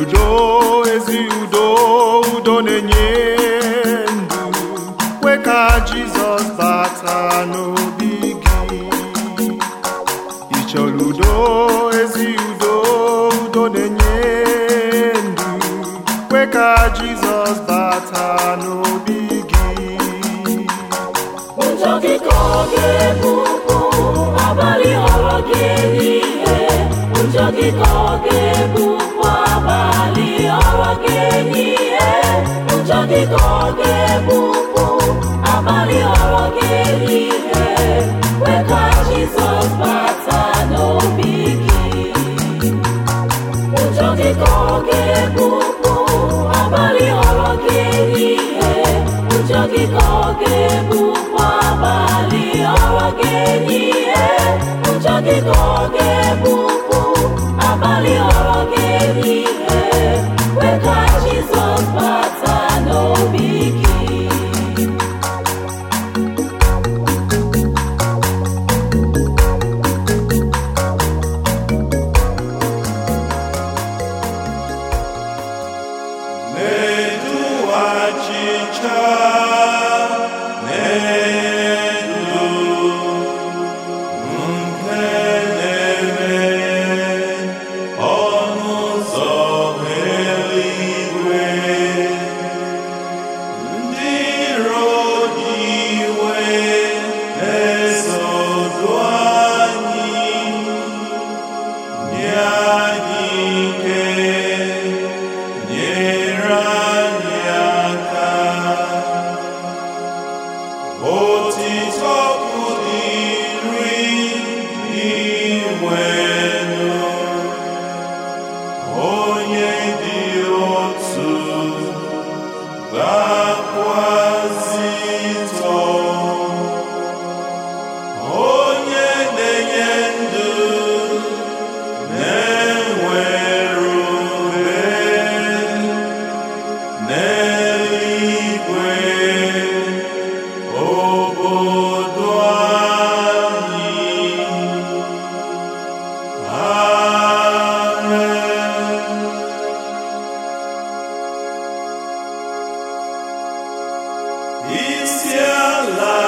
udo ezi udo udo na-enye ndụ kwe ka jizọs bata n'obi gị Ịchọrọ chọrọ udo ezi udo udo na-enye ndụ kwe ka jizọs bata n'obi gị ụjọ gị ka ọ ga-ebupụ abalị ghọrọ gị ehihie ụjọ gị ka ọ ga-ebupụ abalị ọrụ ga-enye ihe ụjọ dị ka ọ ga-ebupụ abalị ọrụ ga-enye ihe kweka Jizọs bata n'obi gị ụjọ dị ka ọ ga-ebupụ abalị ọrụ ga-enye ihe ụjọ dị ka ọ ga-ebupụ abalị ọrụ ga-enye ihe ụjọ dị ka ọ ga o ti tọpụ dii ruri iri igwe love.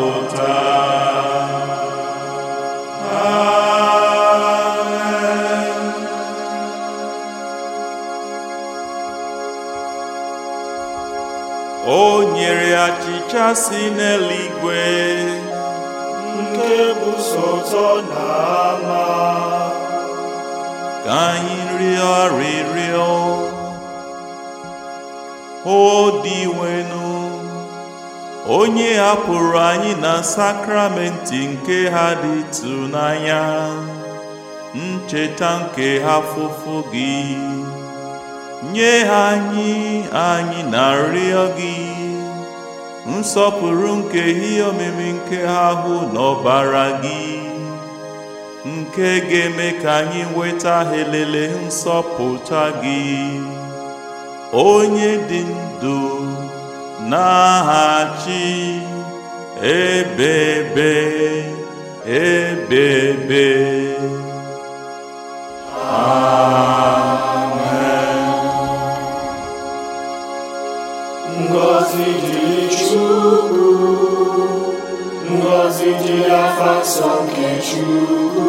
o nyere achịcha si n'eluigwe nke bụ sọ ụtọ na ama ka anyị rịọ rịrịọ o diwenu onye hapụrụ anyị na sakramenti nke ha dị ịtụnanya ncheta nke ha fụfụ gị nye ha anyị anyị na nrịọ gị nsọpụrụ nke ihe omimi nke ha hụ n'ọbara gị nke ga-eme ka anyị nweta helele nsọpụta gị onye dị ndụ Na achị, ebebe ebebe amen ngọzi dịrị chukwu ngọzi dịrị afa nsọ nke chukwu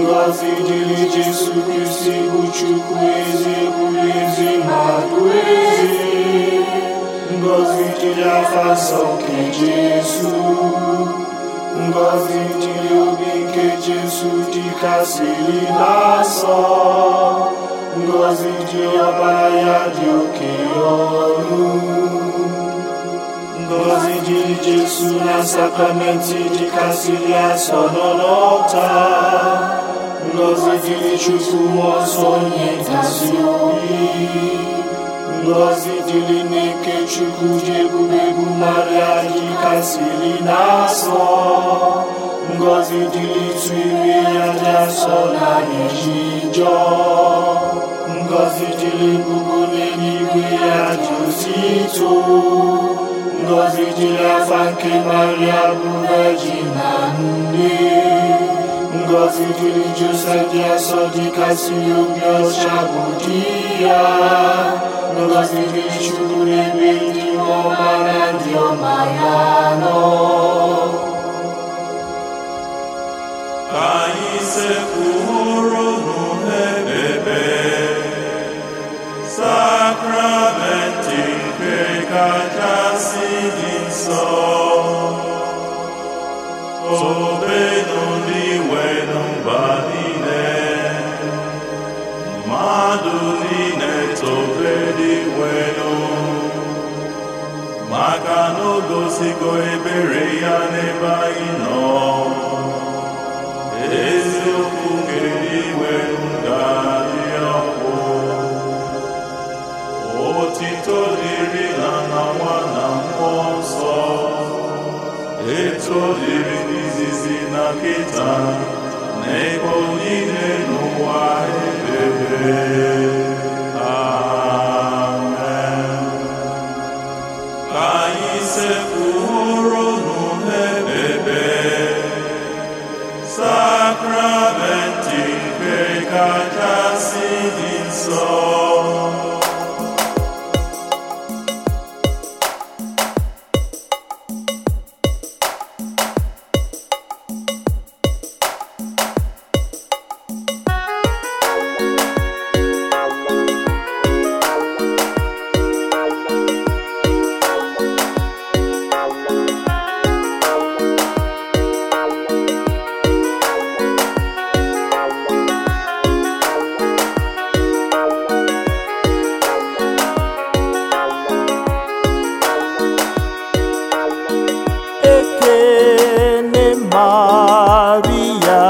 ngọzi dịrị jesu kristi bụ chukwu ezi ekwuru ezi mmadụ ezi Ngọzi dịrị afa nsọ nke Jesu ngọzi dịrị obi nke Jesu dịkasịrị n'asọ ngọzi ji ọbara ya dị oke ọrụ ngọzi dịrị Jesu na sakramenti dịkasịrị asọ nọ n'ọta ngọzi jiri Chukwu mmụọ nsọ onye ngọzidili n'ike chukwu ji egwuregwu maria jikasiri na-asọ ngozi dili ịtụ ime ya dị asọ na anyị ji jọọ ngọzi dịrị mbugo n'eluigwe ya dị osi ito ngọzi dịrị afa nke maria bu vejin na nne ngọzi dịrị josef dị asọ dịkasị obi ọcha bụ di milostivišću nebitimo radio Majano. Anyị sekwuru n'ebe sakramenti nke kachasị dị nsọ. maka na o gosigo ebere ya n'ebe anyị nọ eziokwu nke iwe ga-adị ọkụ otito dịrị na na nwa na mmụọ nsọ etu dịrị n'izizi na nkịta, na ebe niile n'ụwa ebere sakramentị nke kachasị dị nsọ Maria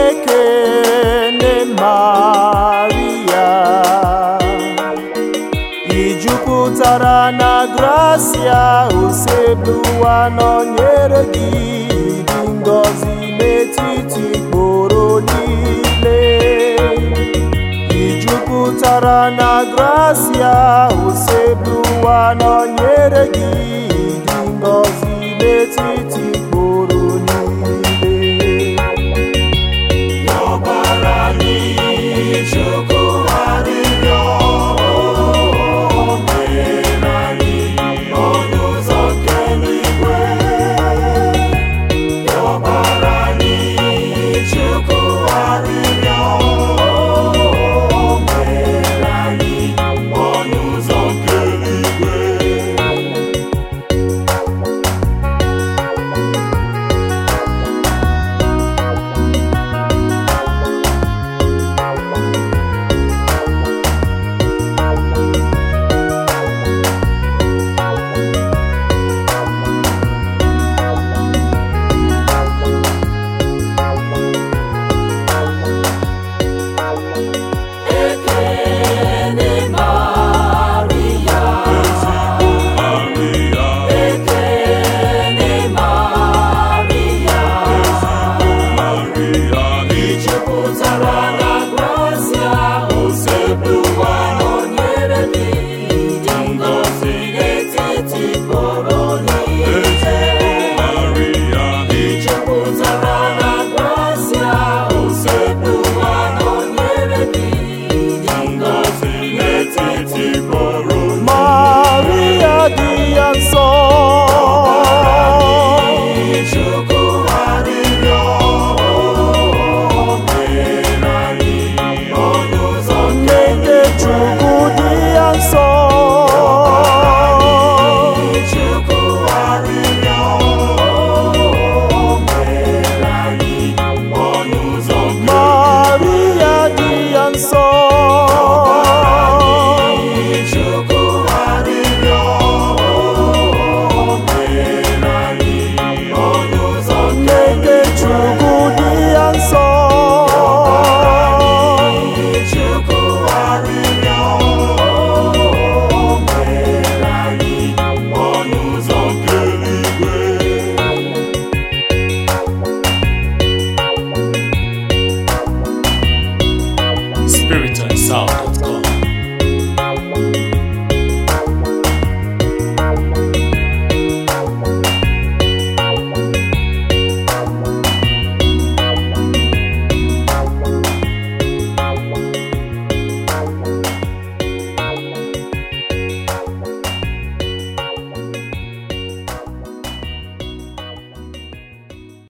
Ekene Maria I na gracia usekpu ụwa gi gị Ngozi ngọzi n'etiti kporo niile I na gracia usekpu ụwa gi.